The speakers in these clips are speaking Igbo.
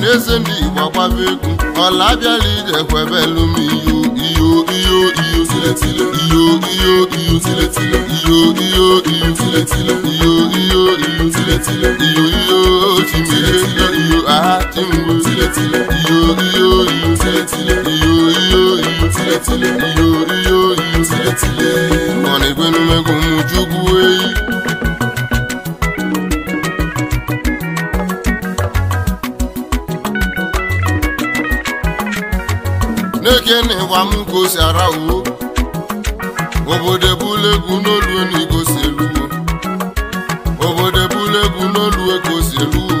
na eze ndị egwu ọla abịala ije kwebelu m iyo iyo iyo iyo tiletile iyo iyo iyo tiletile iyo iyo iyo tiletile iyo iyo iyo tiletile iyo iyo iyo aha chimgbu iyo iyo iyo tiletile iyo iyo iyo tiletile eyi eke n'ịgba m gosi arawo obodo ebule n'olu n'igosi eluwo obodo ebule egwu n'olu egosi eluwo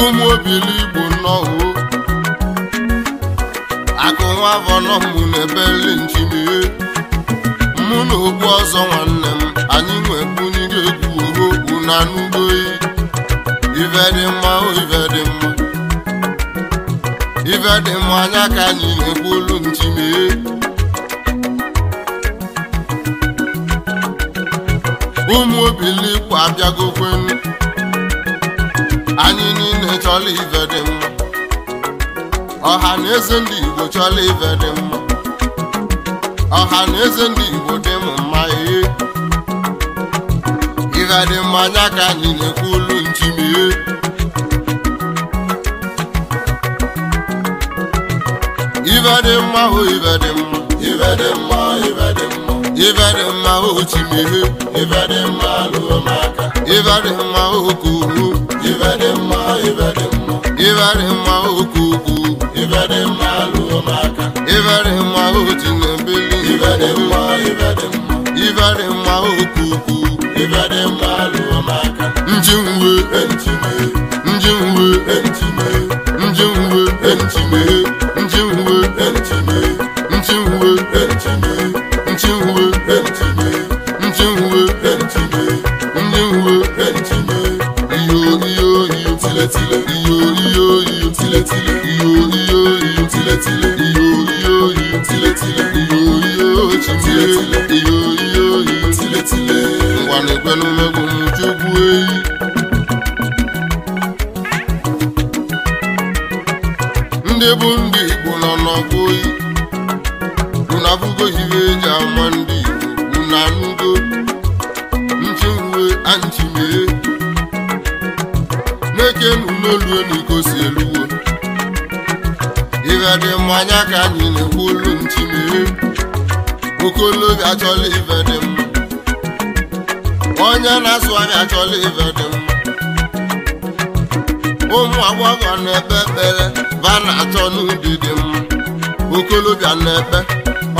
ụmụ obili igbo nnọọ akụ nwa avọnọmụ na-ebeli njimie mụ na ogbu ọzọ nwanne m anyị nwebunye egwu oho na anụgoyi e. ive dị mma oh, ive dị mma Ive dị m anya ka anyị na-ekwu olu ntime ụmụ abịago kwenu, anyị niile chọla ife dị m. ọha na eze ndị Igbo chọla ive dị m. ọha na eze ndị Igbo dị m mma ee ife dị mma anya ka anyị na-ekwu ibe dị mma o ịbadị dị mma ibe dị mma ibe dị mma o mma lụọ m aka ibe dị mma o kuru ibe dị mma ịbadị dị mma ibe dị mma o mma lụọ m aka dị mma na dị mma dị mma dị mma aka ngwanegwenumegwu m jugbu ndị bụ ndị Igbo nọ n'ọgụ oyi unabugo iwe eji ama ndị Igbo unanugo nchiruwe anchimee n'eke n'ụlọelu n'iko si eluwo dị mmanya ka anyị na-ekwu olu ntị mee okolobịa achọla ife dị mma onye na-asụ anyị achọla ife dị mma ụmụ agbọghọ na-ekpe ekpere ba na-achọ n'ubi dị mma okolobịa na-ekpe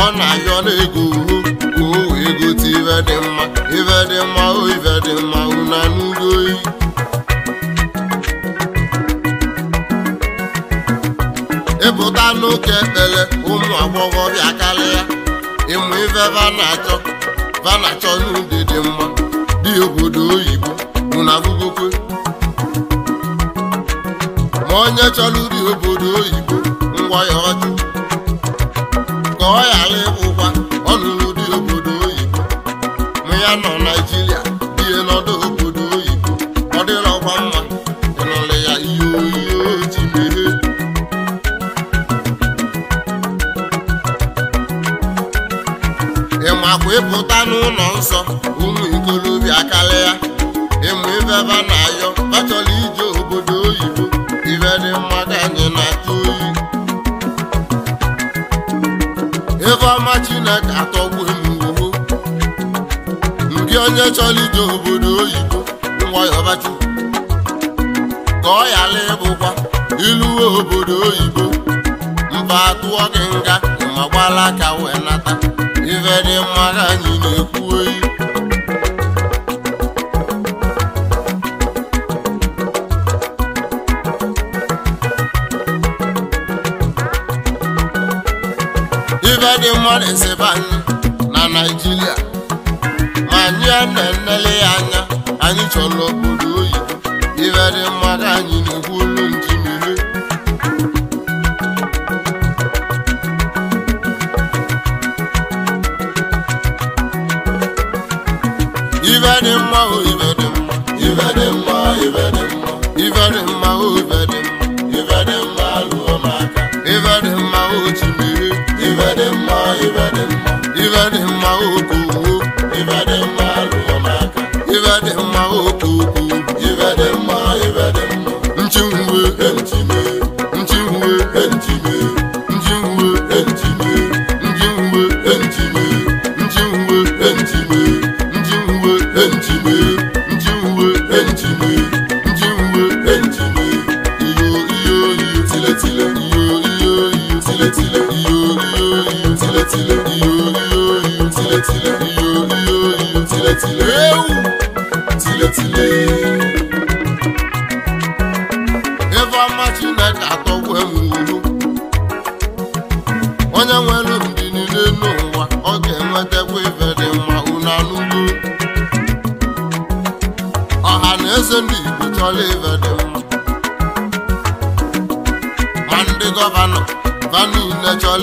ọ na-ayọ na-ego uhu ka o wee gote ife dị mma ife dị mma o ife dị mma una n'ugo oyi jepụta n'ụka ekpere ụmụ agbọghọbịa karịa ịmụ ife vanachọ vanachọ n'ụdị dị mma dị obodo oyibo ụnabụgokwe ma onye chọrọ ụdị obodo oyibo ngwa ya ọjụ ka ọ ghara ịbụkwa ọ dị obodo oyibo ma ya nọ naijiria nsọ ụmụ ikolobịa emu ịmụ ebe na ayọ achọla ije obodo oyibo ibe dị mma ka anyị na-atụ oyi ebe ọma Chineke atọgbu m ndị onye chọrọ ije obodo oyibo nwayọbachi ka ọ ghara ịbụkwa iluwe obodo oyibo mba atụọ gị nga ma gbala aka wee nata ife dị mma ka anyị na-ekwu oyi ife dị mma na-esebe anyị na Naịjirịa ma anyị na-enele ya anya anyị chọrọ obodo dị mma o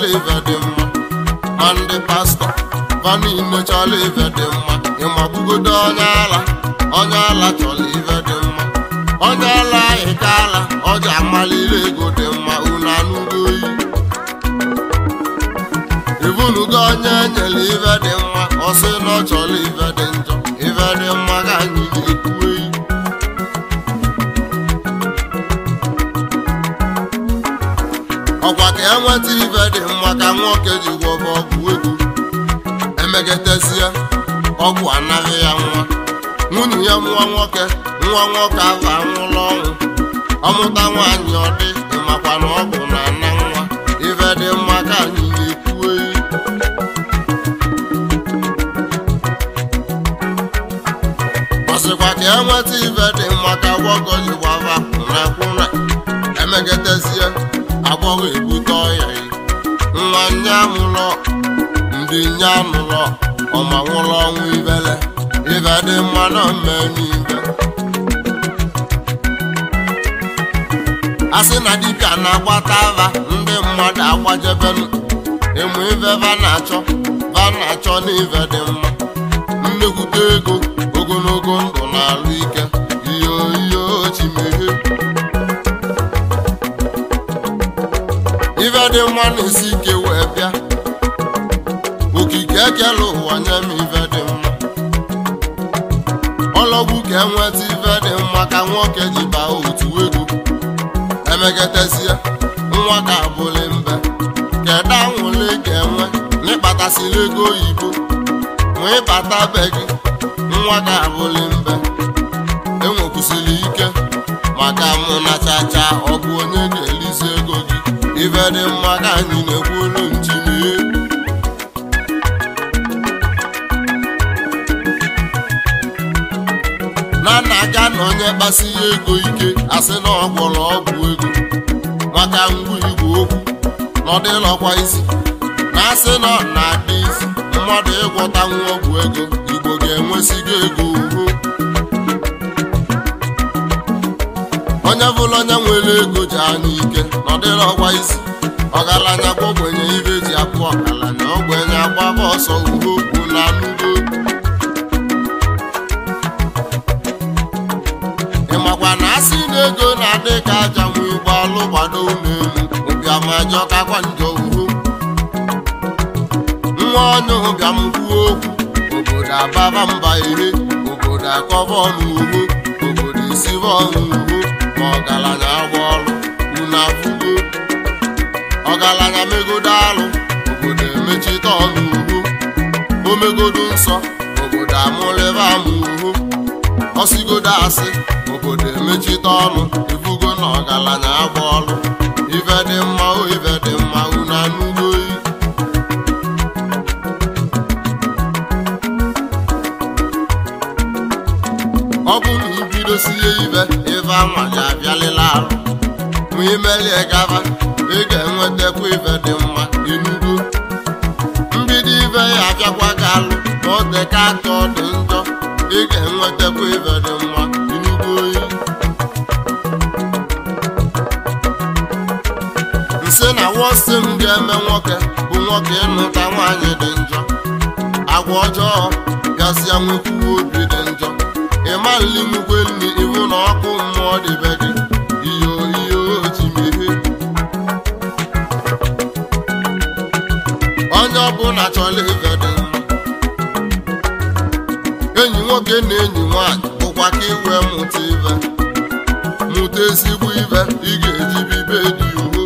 chọla ife dị mma ndị pastọ fa niile chọla dị mma ịmabugodo onye ala onye ala dị mma onye ala ka ala ego dị mma ibunugo onye dị mma dị njọ ọkwa ya nweta dị mma ka nwoke ji gwọ ọgwụ egwu emegetezie ọgwụ anaghị ya nwa nwunye ya nwa nwoke nwa nwoke ahụ anwụla ọnwụ ọmụta nwaanyị ọ dị makwa na ọgwụ na-ana nwa ife dị mma ka anyị na-ekwu ọsịkwa ka ya e nweta ife dị mma ka nwoke ji gwọ emegetezie agbọghọ ebute ya nwa nya mụlọ ndị nya nụlọ ọma nwụrụ ọnwụ ibele ibe dị mma na mmemme a sị na dibịa na-agbata ava ndị mmadụ agbajebelu ịmụ ibe ba na-achọ ba na-achọ na dị mma nnekwute ego ogologo ndụ na-alụ ike dị mma na-esi ike wee bịa okike ekele ụwa nye m ife dị mma ọlọgbu ka enweta ife dị mma ka nwoke ji baa otu ego emegetezie nwa ka abụli mbe kedu anwụle ka enwe n'ịkpatasịla ego oyibo nwee ịbata be gị nwa ka abụli mbe enwekwusịrị ike maka mụ na chacha ọgụ onye ife dị mma ka anyị na-ekwulu ntimi na nna na onye kpasi ya ego ike asị na ọgwọrọ ọgwụ ego maka ngwa igwe okwu na ọdịlọkwa isi na asị na ọ na-adị isi mmadụ ịgwọtanwu ọgwụ ego igbo ga gị ego ugo onye bụla onye nwere ego ji anya ike na ọ ọgwa isi ọgaranya gwogbenye ibe ji akpụ na ogbenye agbaba ọsọ ugo okwu na anụgo ịmakwa na asị na ego na-adị ka aja nwe igbo alụgbado n'elu ụbịamajọ kakwa njọ ugo nwa onye ụbịam kwuo okwu obodo ababa mba ire obodo akọba ọnụ ugbo obodo esiba ọnụ ugbo ma ọgaranya agwa ọrụ unu afụgo ọgaranya megodo alụ obodo emechite ọnụ uhu o megodo nsọ obodo amụlịba ama uhu ọsigodo asị obodo emechite ọnụ ifugo na ọgaranya agwa ọrụ ife dị mma o ife dị mma unu ọ bụ dosie ibe ife anwa ga abịalịla arụ ma imelie gaba ị ga-enwetakwa ife dị mma inugo mbido ibe ya abịakwa gị alụ ma ọ dị ka atọ dị njọ ị ga-enwetakwa ife dị mma inugo oyi nsị na wọsi m ga-eme nwoke bụ nwoke ịnụta nwaanyị dị njọ agwa ọjọọ gasịa nwekwuwe obi ọlị nnukwu enyi iwu na ọkụ mmụọ dịbe gị iyo iyo chimere onye ọbụla chọla ibe dị enyi nwoke na enyi nwanyị bụkwa ka iwe mụta ibe mụta ezigbo ibe ị ga-eji bibe dị uwe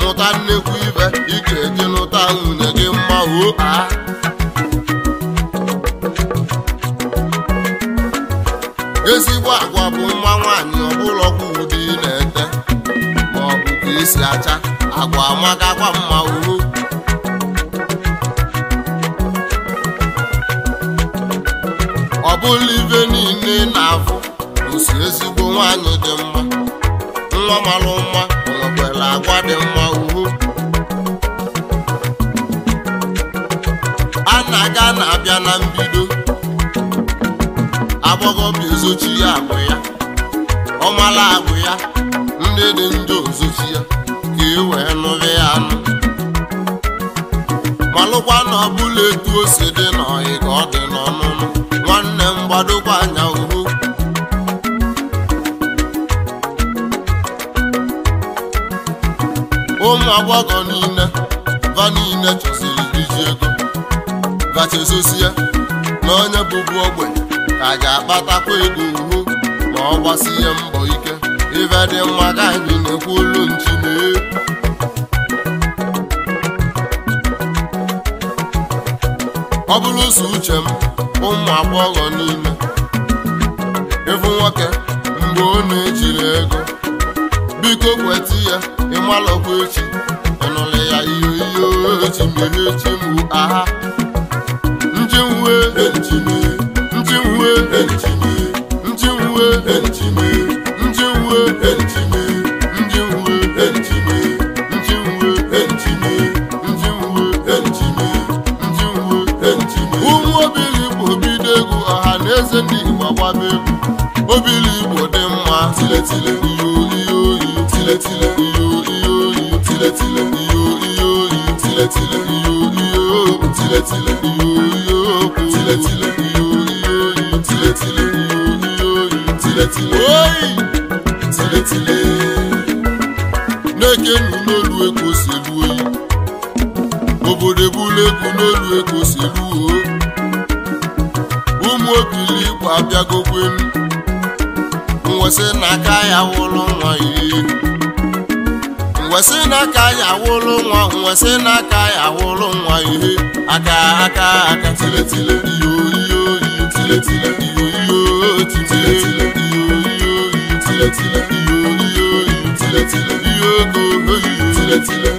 mụta nnekwu ibe ị ga-eji lụta nwunye gị mma o ezigbo agwa bụ nwa nwaanyị ọbụlọkwa ụdị na-ete ma ọ bụ ka esi acha agwa amakakwa mma uru ọ bụla ibe niile na-afụ osi ezigbo nwaanyị dị mma nwa malụ mma nwekwara agwa dị mma uru a na-aga na-abịa na mbido agbọghọbịa bụ ya agbụ ya ọmala agbụ ya ndị dị ndị ozochi ya ka e wee ya anụ malụkwa na ọbụla etu o si dị n'ọyị ọ dị n'ọnụnụ nwanne m gbadokwa anya uhu ụmụ agbọghọ niile va niile chọsiri iji ego vachezosie na onye bụbu ogbenye a ga-akpatakwa ego uhu ma ọ gbasie mbọ ike ife dị mma ka anyị na-ekwu olu nchine ọ bụrụ ụzọ uche m ụmụ agbọghọ niile ịfụ nwoke mgbe ọ na-ejiri ego biko kweta ya ịmalọkwa echi ịnụlụ ya ihe ihe ochi mere chimụ aha njiwe nchine njiwe njiwe njiwe na eze ndị egwu igbo dị mma tiletile ihe oyi oyi tiletile ihe oyi oyi tiletile ihe tiletile tiletile etili na-eke nu n'olu si elu oyi obodo ebula egwu n'olu eko si elu o ụmụ obili igwe abịagokwenu mwesị n'aka ya wụlụ nwa iri n'aka ya wụlụ nwa nwa ihe aka aka aka tiletile iyo tiletile tiletile oyiyo oyiyo oyi tiletile ihe ego oyiyo tiletile